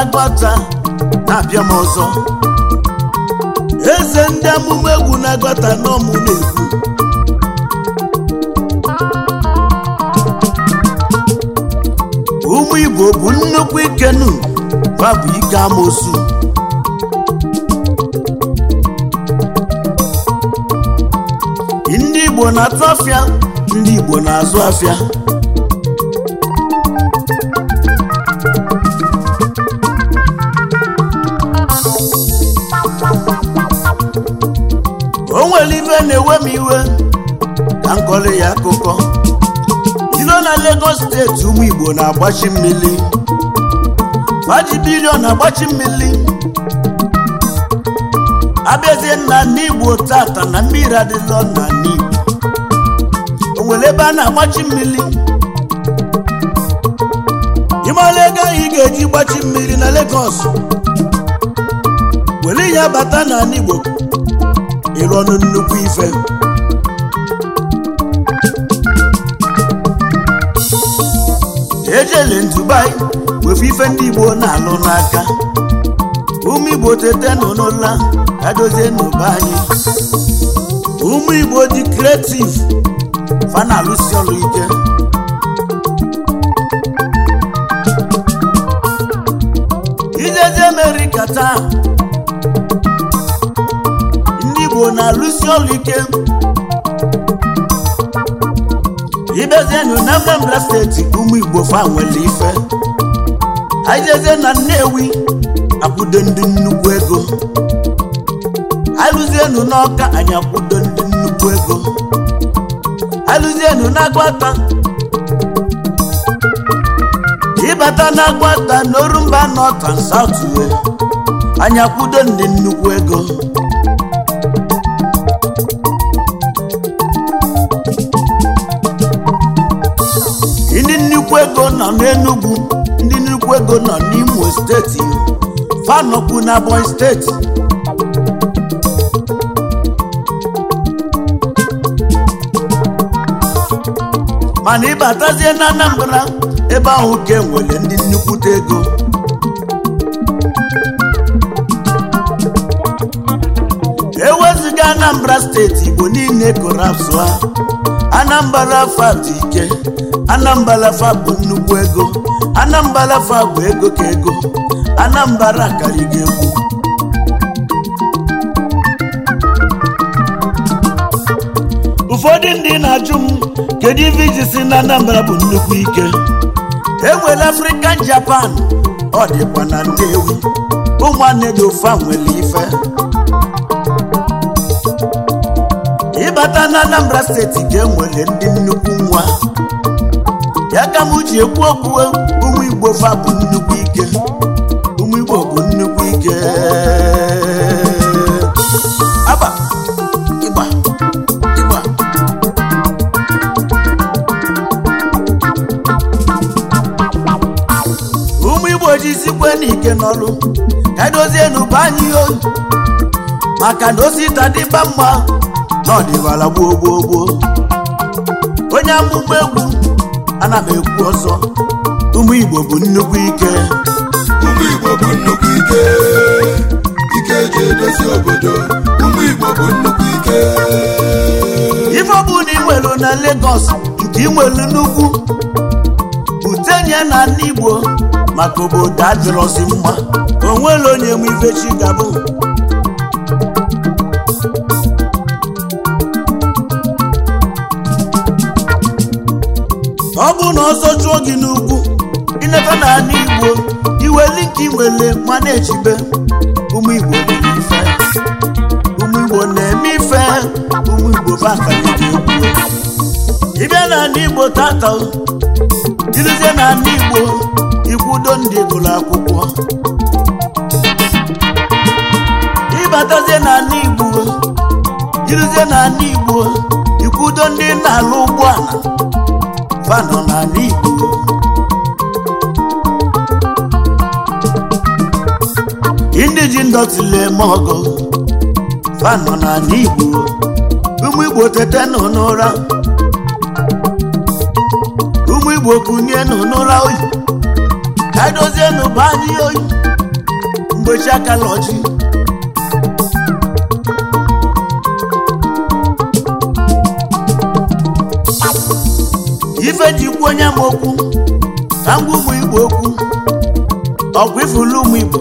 na na-abịa m ọzọ eze ndị amụma egwu na-agọta n'ọmụ na-egwu ụmụ igbo bụ nnukwu ikenu gbabụ ike amosu ndị igbo na-atụ afịa ndị igbo na-azụ afịa ya akụkọ iro na Lagos steeti ụmụ Igbo na-agbachi mmiri Fajibirio na-agbachi mmiri abịazie nna n'Igbo tata na mmiri adịlọ na n'Igbo o nwere ebe a na-agbachi mmiri ịmara ego anyị ga-eji gbachi mmiri na Lagos were ya bata n'ala Igbo ịrụ ọnụ nnukwu ife ejele Dubai wefu ife ndị Igbo na-alụ n'aka ụmụ Igbo tete nọ n'ụla adozie n'ụba anyị ụmụ Igbo dị kreativ fa na-alụsi ike ijeje Amerịka taa ndị Igbo na-alụsi ike ibidozienu na Anambra steeti ụmụ Igbo nwere ife na Nnewi akwụdo ndị nnukwu ego alụzienu n'Ọka akwụdo ndị nnukwu ego alụzienu n'Agwata ịbata n'Agwata n'Orumba North and South anyị ndị nnukwu ego nnukwu ego nọ n'Enugu ndị nnukwu ego nọ n'Imo steeti fanọkwu na Ebonyi steeti mana ịbatazie na Anambra ebe ahụ ka enwere ndị nnukwute ego Anambra steeti Igbo niile a Anambra fa dị ike Anambra fa bụ nnukwu ego Anambra fa bụ ego ka ego Anambra karịgo egwu ụfọdụ ndị na-ajụ m kedu ife iji si na Anambra bụ nnukwu ike enwere African Japan ọ dịkwa na ewu ụmụnne dị ụfa nwere ife mbata na Anambra steeti ga enwere ndị nnukwu nwa ya ka m ji ekwu okwu e, ụmụ Igbo fa bụ nnukwu ike ụmụ Igbo bụ nnukwu ike aba ịgba ịgba Igbo jisikwe n'ike n'ọrụ ka dozie n'ụba anyị ihe maka na osita dịba mma nọdịwala gboo gboo gboo onye akpụkpọ egwu ana m ekwu ọsọ ụmụ Igbo bụ nnukwu ike ụmụ Igbo bụ nnukwu ike ike eji edozi obodo ụmụ Igbo bụ nnukwu ike ife ọ bụla ị na Lagos nke ị nwelu n'ugwu butenye na ndị Igbo maka obodo adịrọzi mma onwere onye m ifechi gabụ ma ọ bụrụ na ọsọ chụọ gị n'ugwu ileta n'ala ala igbo iweli nke iwele ma na-echibe ụmụ igbo na ife ụmụ igbo na-eme ife ụmụ igbo ị bịa n'ala igbo tata jirizie n'ala igbo ikwudo ndị gụrụ akwụkwọ ịbatazie na ala igbo jirizie n'ala igbo ikwudo ndị na-alụ ụgbọala fa nọ na Igbo ndị ji ndọtile eme ọgọ fa nọ na Igbo ụmụ Igbo tete nọ n'ụra ụmụ Igbo kunye nọ n'ụra oyi ka nọ bụ anyị oyi mgbe chi akala ọchị ife jikwu onye m okwu na ngwa ụmụ igbo okwu ọgwụ ifulu ụmụ igbo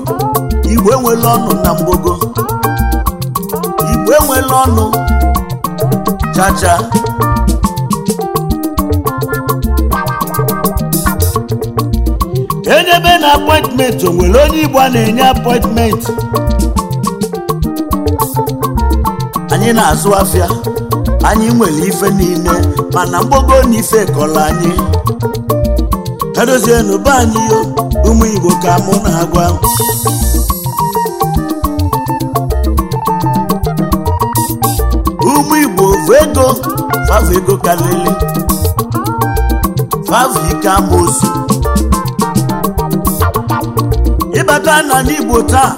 igbo enwela ọnụ na mgbogo igbo enwela ọnụ chacha enyebe na apọịntmentị o nwere onye igbo a na-enye apọịntmentị anyị na-azụ afịa anyị nwere ife niile mana mgbogo na ife kọrọ anyị edozienu be anyị ụmụ Igbo ka mụ na-agwa ụmụ Igbo bụ ego fava ego kalele ịbata na n'Igbo taa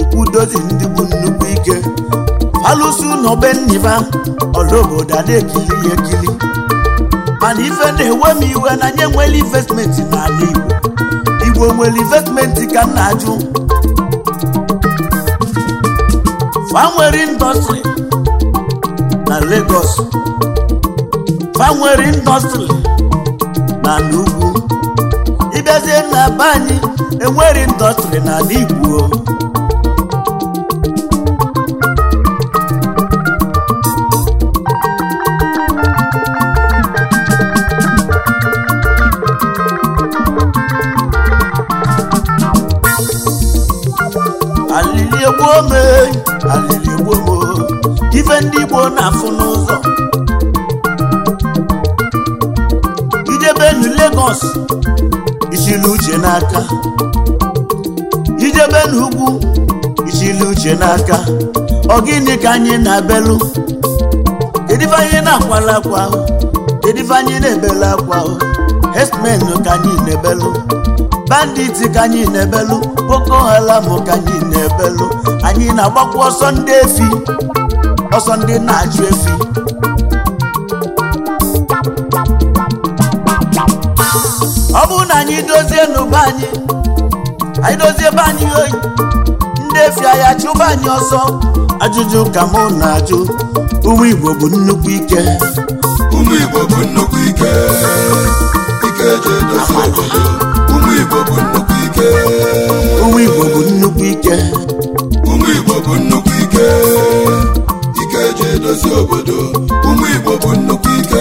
ikwudozi ndị bụ nnukwu ike alụsị ụnọbe nniba ọlaobodo na ekili ekili mana ife na-ewe m iwe na nye nwere investmenti n'ala igbo igbo nwere investmenti ka m na-ajụ fa nwere na Lagos fa nwere indọstrị na n'ugwu ịbịazie na be anyị enwere indọstrị n'ala igbo ndị Igbo na-afụ n'ụzọ ijebe Lagos ichili uche n'aka ijebe n'ugwu ichili uche n'aka ọ gịnị ka anyị na-abelu kedive anyị na-akwala akwa ahụ kedive anyị na-ebelu akwa ahụ herdsmen ka anyị na-ebelu banditi ka anyị na-ebelu boko haram ka anyị na-ebelu anyị na-agbakwa ọsọ ndị efi ọsọ ndị na-ajụ efi ọ bụrụ na anyị dozie n'ụba anyị anyị dozie ebe anyị oyi ndị efi ahịa chụba anyị ọsọ ajụjụ ka mụ na-ajụ uwe igbo bụ nnukwu ike uwe ụmụ igbo bụ nnukwu ike ụmụ igbo bụ nnukwu ike na-edozi obodo ụmụ Igbo bụ nnukwu ike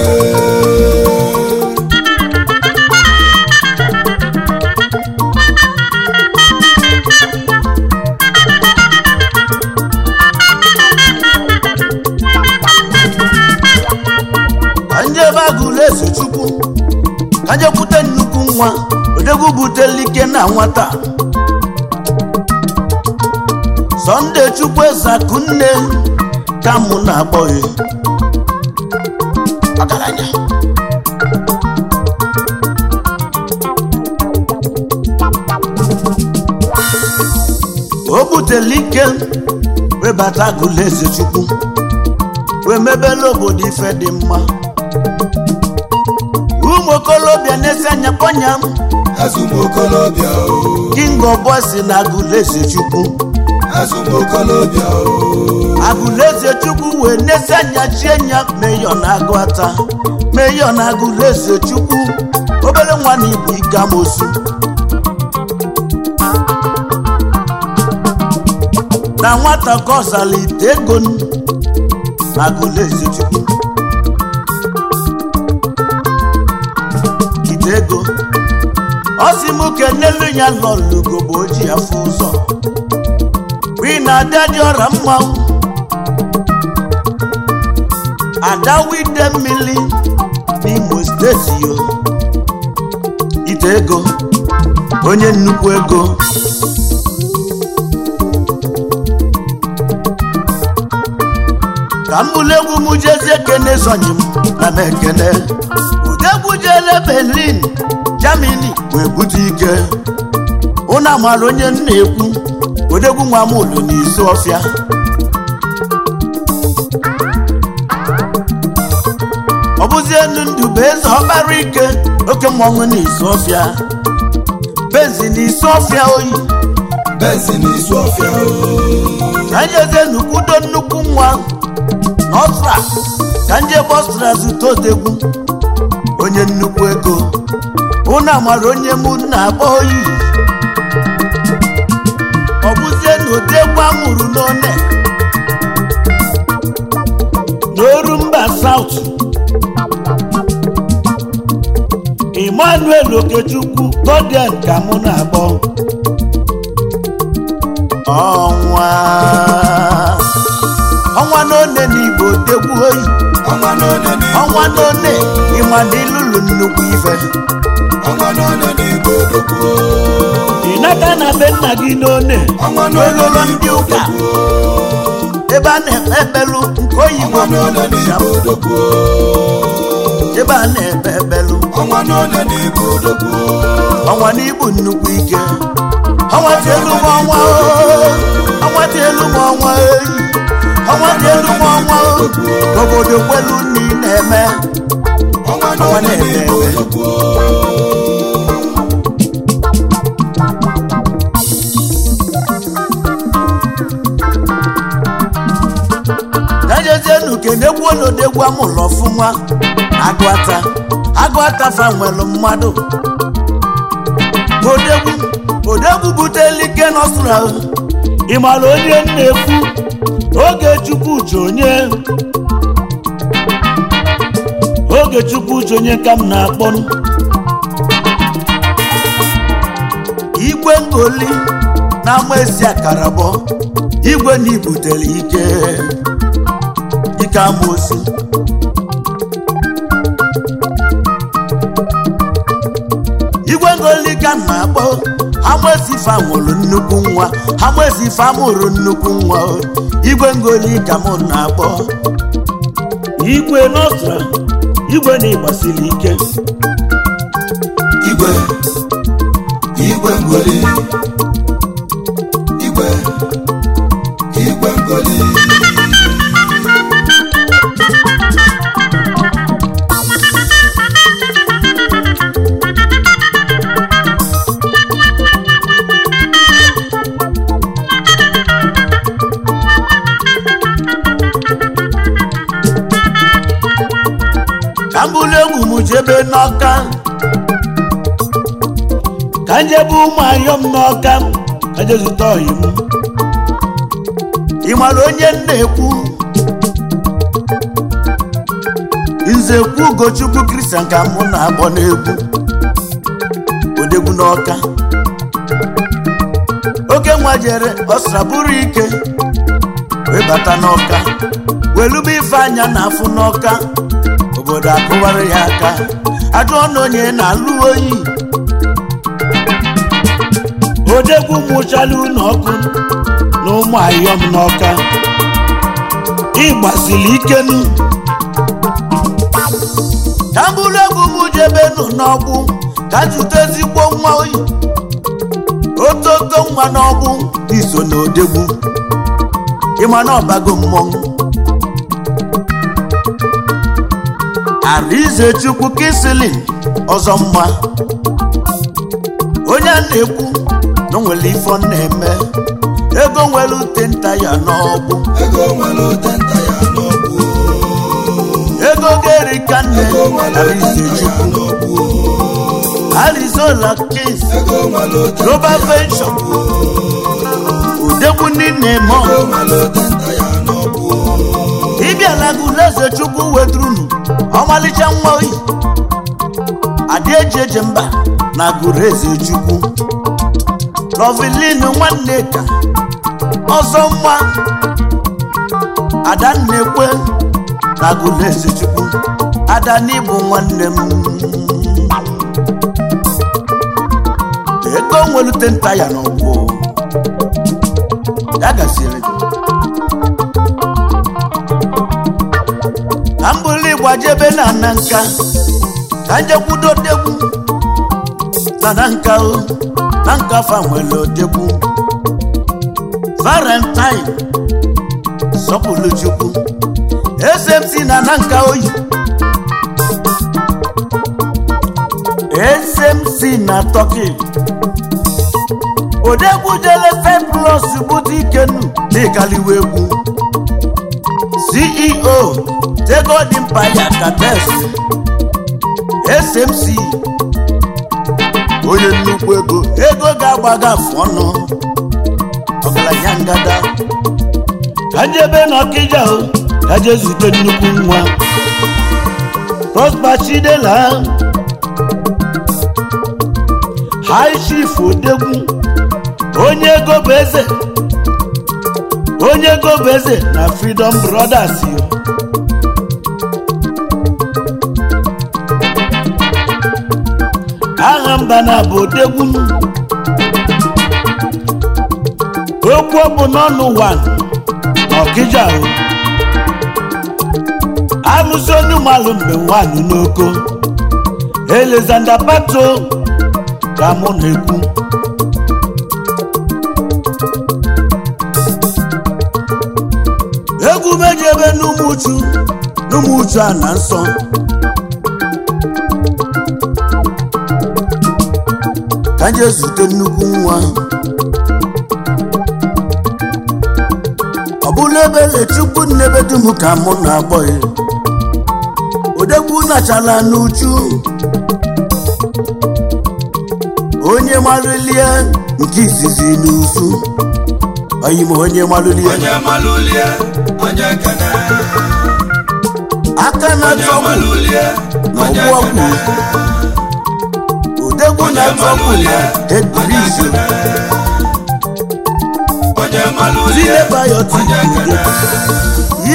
nwa odegwu ike na nwata Sunday chukwu Akunne ka mụ na-akpọghị ọgaranya o butela ike webata eze chukwu wee mebela obodo ife dị mma ụmụ okolobịa na-esi anya kpọnya m azụmokolobịa king ọbọ si na eze chukwu azụmokolobịa o agụleze chukwu wee n'ezi anya chie nya meyọ na agụ ata meyọ na agụleze chukwu obere nwa na ibu igamosu na nwata ka ego agụleze chukwu ego ọ m n'elu ya nọ lugo bụ oji afọ ụzọ bụ na-adị adị ọra mmanwụ adawide mmiri n'Imo steeti yo ide ego onye nnukwu ego ka m bụrụ egwu m jezi ekene sonye m na m ekene udegwu jele Berlin Germany wee bute ike ụnụ amara onye m na-ekwu odegwu nwa m ụlọ n'isi ọfịa elu ndụ bụ eze ọkpara ike oke mmọnwụ na izu ọfịa benzi na isu ọfịa oyi benzi na isu ọfịa oyi ka njeze n'ukwudo nnukwu nwa n'ọstra ka nje bọstra zụta otegwu onye nnukwu ego ụnụ amara onye mụ na-akpọ oyi ọ bụzie na ụdị egwu amụrụ n'one n'oru mba saut Emmanuel Okechukwu Godien ka mụ na-akpọ ọnwa ọnwa n'one n'Igbo tegwu oyi ọnwa n'one ịma na ịlụlụ nnukwu ife ịnaka na be nna gị n'one n'ololo ndị ụka ebe a na-ekpelu nke oyibo ebe a na-ekpe ekpelu ọnwa n'ole n'ibu nnukwu ọnwa n'ibu nnukwu ike ọnwatielu m ọnwa ọnwatielu m ọnwa ọnwatielu m ọnwa obodo kwelu nni na-eme ọnwa na-eme eme ejezienu kenegwu olodegwu amụlọ ọfụma agụata agụ akafa nwere mmadụ odegbu odegbu butela ike n'ọsụra ịmara onye na-ekwu oge chukwu ji onye oge chukwu ka m na akpọnụ igwe ngoli na akara akarabọ igwe na ibutere ike ike amosi Ngolika na-akpọ Amozife nwụrụ nnukwu nwa Amozife amụrụ nnukwu nwa igwe ka m na-akpọ igwe n'ọstra igwe na-agbasiri ike igwe igwe Ngoli ụmụ m n'ọka ejezụta ọyị m ị mara onye m na-ekwu nzekwu ugochukwu kristian ka mụ na-agbọ n'egwu odegwu n'ọka oke nwa jere ọsra bụrụ ike wee bata n'ọka welube ife anya na afụ n'ọka obodo akụwara ya aka ajụ ọnụ onye na-alụ oyi odegwu mụchala unu ọkụ na ụmụ ayọm n'ọka ịgbazili ikenu ka bụrụ egwu m jebenu n'ọgbụ ka ezigbo nwa oyi ototo nwa n'ọgbụ iso na odegwu ịma na ọbago mmọnwụ arize chukwu kisilin ọzọ mma onye a na-ekwu na onwere ifo na-eme ego nwere ute nta ya n'ọgbụ ego ga-eri ka nne Arinzechukwu Arizona Kings roba Pension udekwu niile mọ ịbịala gị Ulaeze Chukwu weturunu ọmalịcha nwa oyi adị eji eje mba na gụrụ eze Chukwu nwanne Nwaneka ọzọ mma Adannekwe na Agụlesi Chukwu Adani bụ nwanne m ego nwelute nta ya n'ọgbọ ya gasịrị ka m bụrụ na ana nka ka njekwudo degwu na na nka o na nkafa nwere odegbu valentine sọpụrụ SMC na Nanka oyi SMC na Turkey odegbu jele feplus bụta ikenu egwu CEO tego dị mpa ya kates SMC onye nnukwu ego ego ga-agbaga afụ ọnụ ọgaranya ngada ajebe na ọkịja aje zute nnukwu nwa prosper chidela odegwu onye ego bụ eze onye ego bụ na freedom brothers yo mbana bụ odegwu okwu ọ bụ n'ọnụ ụwa ọkịja amụsị onye ụmalụ mgbe nwaanyị n'oko Alexander Pato ka mụ na-ekwu egwu meji ebe n'ụmụchu uchu a na nsọ jee zute nnukwu nwa ọ bụla ebe chukwu n'ebe dum ka mụ na-agbọghị odegbu nachala n'uchu onye marụlie nke izizi n'usu oyim onye marụlie aka na-atụ ọgwụ na ọgwụ ọgwụ egwu na tọmụya egwurizu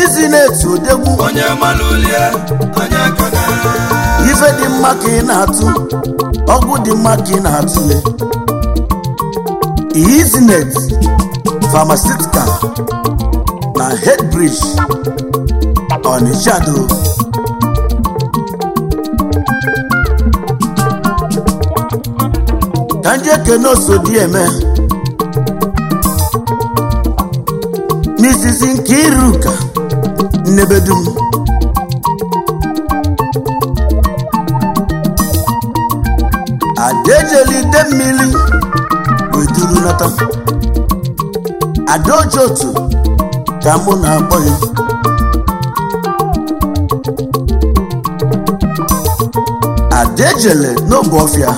izi na-etu odegwu ife dị mma ka ị na-atụ ọgwụ dị mma ka ị na-atụle izinet pharmaceutical na headbridge Onitsha ndị ekene oso dị eme n'izizi nke iruka nnebedum adaejela ide mmiri weduru nata adaoji ka mụ na-akpọ ya adaejele n'oge ọfịa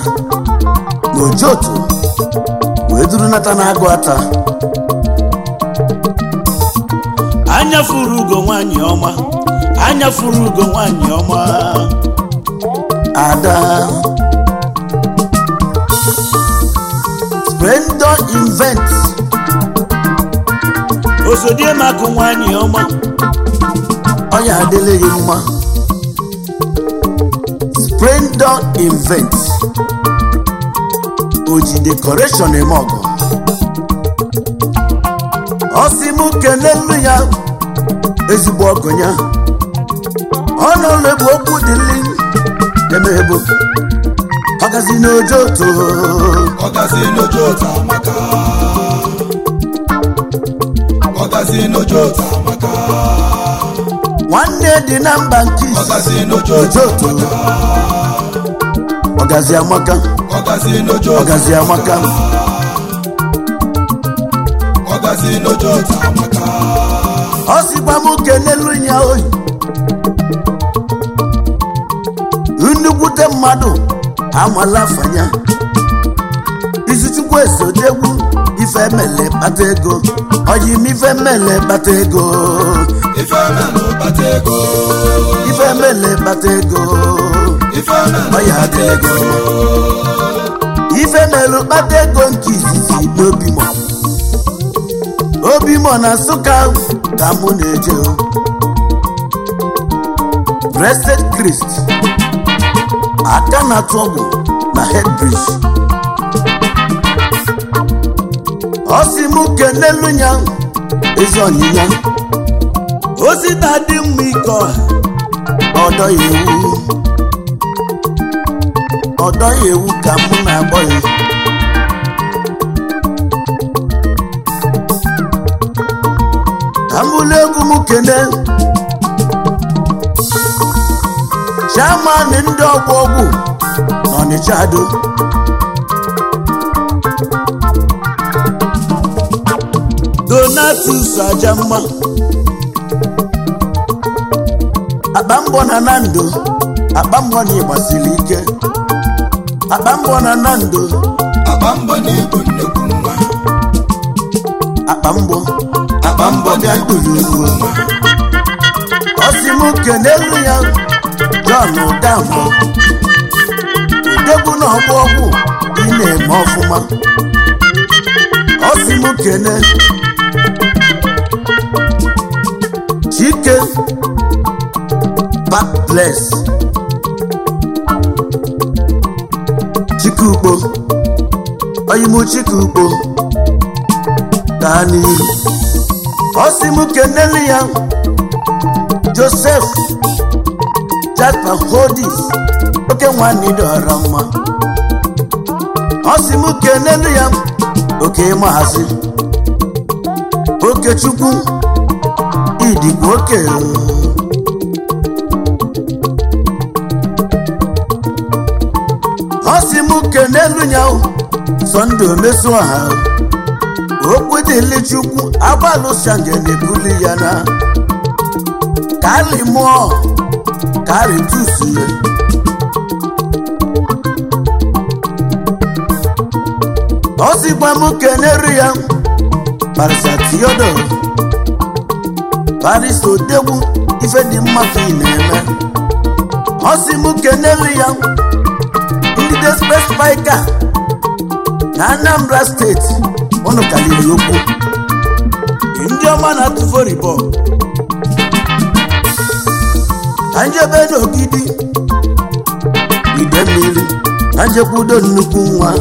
ogojotu wee duru nata na-agụ ata anya furu ugo nwanyị ọma anya furu ugo nwanyị ọma ada splendor invent osodiemakụ nwanyị ọma ọya adịla gị mma splendo invent oji dekoration eme ọgọ ọsị m kenelu ya ezigbo ọgọ ya ọnụlụ bụ okwu dị dịli emeghebu ọgazi n'ojo otu ọgazi n'ojo otu amaka ọgazi n'ojo otu amaka nwanne dị na mba nke ọgazi n'ojo otu ọgazi amaka ọgazi amaka ọ sịkwa m kelelu ya oyi nnukwute mmadụ amala afanya izichukwu esodegwu ife emele kpata ego ọyị m ife emele kpata ego ife emele kpata ego ife melu kpata ego nke izizi Obi obimo na nsụka ka mụ na-eje Blessed Christ aka na tọgbụ na Headbridge ọ si m n'elu ya ezi ọnyịnya ozi na-adị mma ike ọha ọdọ ewu ọ dọghị ewu ka mụ na-agbọ ya ka m egwu m kene chairman ndị ọgwụ ọgwụ n'Ọnịcha do Donatus mma akpa mbọ na na ndo akpa mbọ na ịgbasiri ike akpambọ mbọ na Nando akpambọ na-ebu nnukwu mma akpambọ akpambọ ga mbọ bịagburu ugwu ọ sị m ya John Udamụ odegwu na ọgwụ ọgwụ ị na-eme ọfụma ọ sị na kene Chike back chikukpo oyimuchikukpo gaa n'ihu ọsị m keneli ya josef jakpa hodis oke nwanne dọrọ mma ọsị m okechukwu n'elu ya Sunday omesu ọha okwu ukwu chukwu agbalụsange na-ebuli ya na kali mụọ kali ya ọ sịkwa m kenere ya parisa tiodo parisa odegwu ife dị mma ka ị na-eme ọsị sị m kenere ya candidates West Vica na Anambra steeti unu kaliri ndị ọma na-atụ volleyball ka njebe n'ogidi ide mmiri na njekwa nnukwu nwa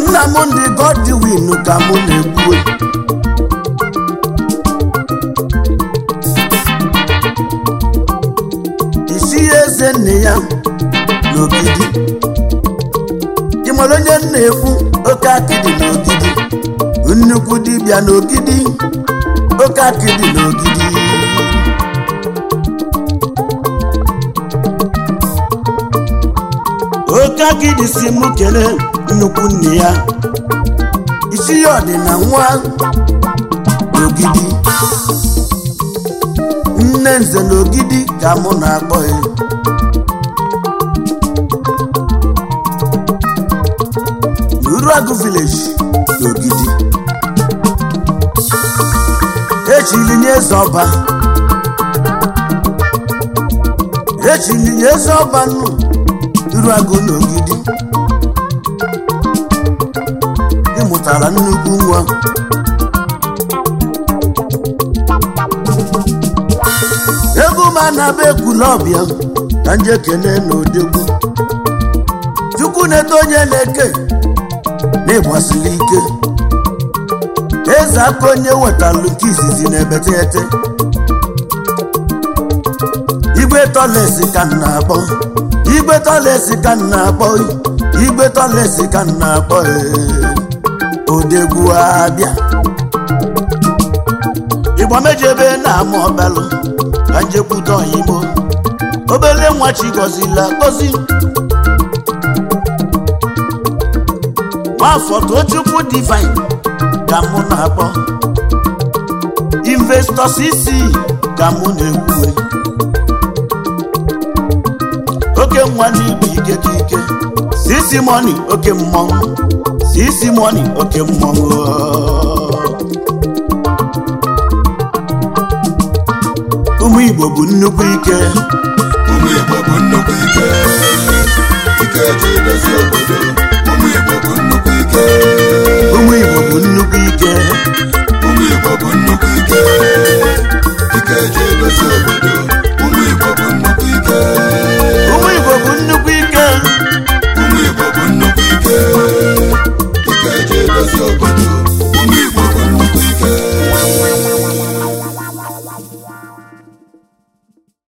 nna m ndị godwin ka m na-ekwu ya n'ogidi ị mara onye na-ekwu oke akịdị n'ogidi nnukwu dibịa n'ogidi oke akịdị n'ogidi oke akịdị si mụ kelee nnukwu nne ya isi ya ọdị na nwa n'ogidi nne nze n'ogidi ka mụ na-akpọ ya Ụlọagụ village n'Ogidi echilinye eze ọba echilinye eze ọba nnu Ụlọagụ n'Ogidi ịmụtara nnukwu nwa egwu m anaba ekwula ọbịa ka njekene na odegwu chukwu na-eto onye na-eke n'ịgbasili ike eze aka onye wetalụ nke izizi na-ebetete igwe tọlesi ka nna akpọ igwe tọlesi ka nna akpọ igwe tọlesi ka nna akpọ odegwu abịa igbo mejebe na-ama ọbalụ ka njekwute oyigbo obele nwa chi gọzila gọzi afọ tochukwu divine ka mụ na-akpọ investọs isi ka mụ na-ewuwe oke nwa n'igbo ike ka ike sisi mọni oke mmọnwụ sisi mọni oke mmọnwụ ụmụ igbo bụ nnukwu ike ụmụ igbo bụ nnukwu ike ike ji edozi obodo ụmụ igbo bụ nnukwu ike. bụ nnukwu ike ụmụ Igbo bụ nnukwu ike ike eji edozi obodo ụmụ Igbo nnukwu ike